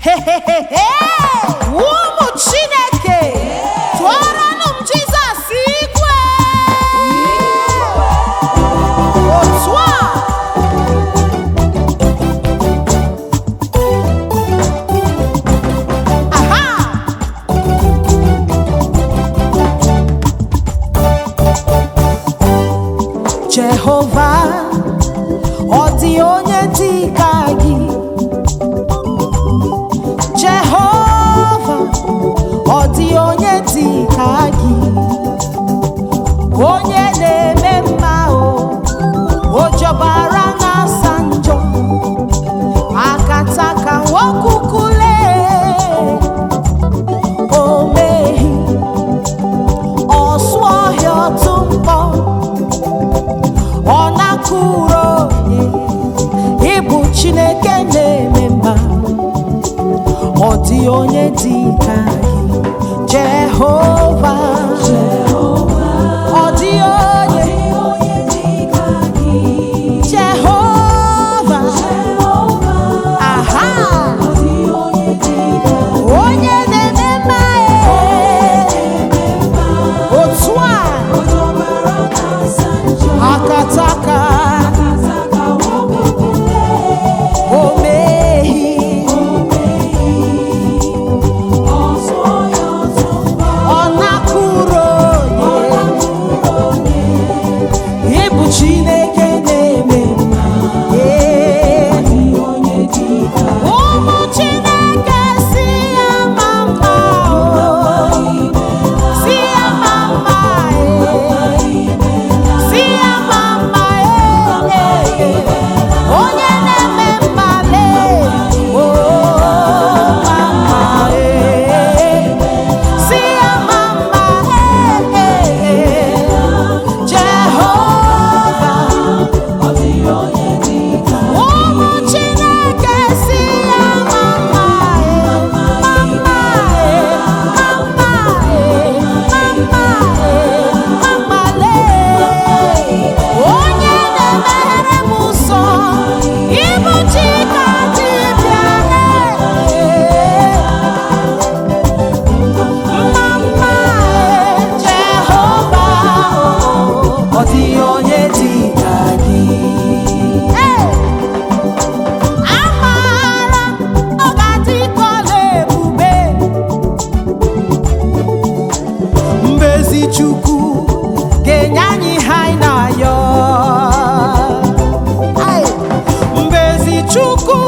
Hey, hey, hey, hey! Whoa! onye ịbụ Chineke na-eme mma ọ dị onye dị ka dị Chukwu ga-enye anyị ihe anyị na-ayọ mgbe ezi Chukwu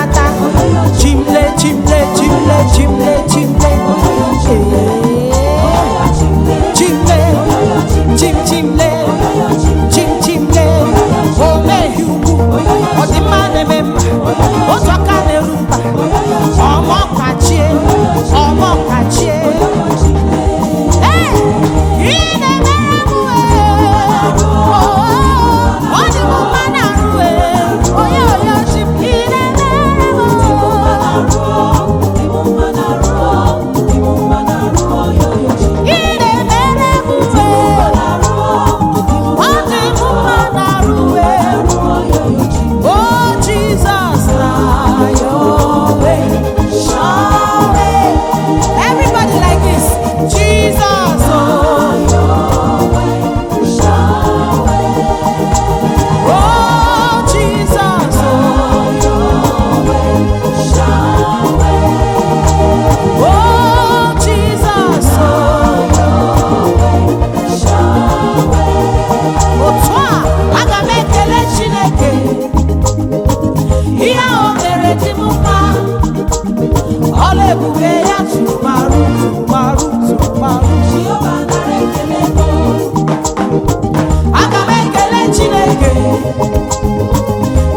chimle chimle chimle chimle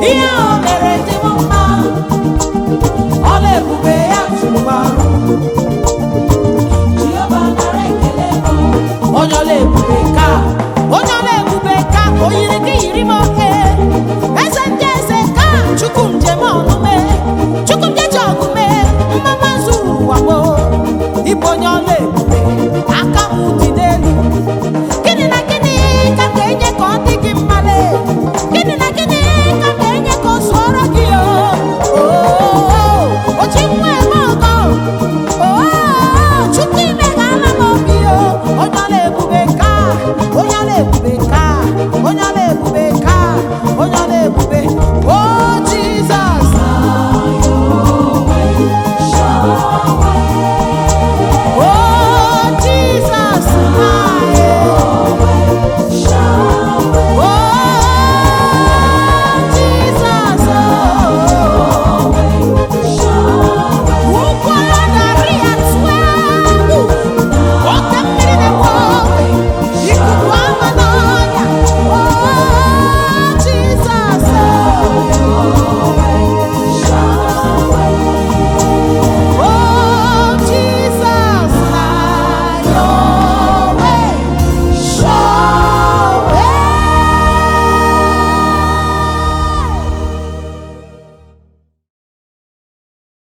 ihe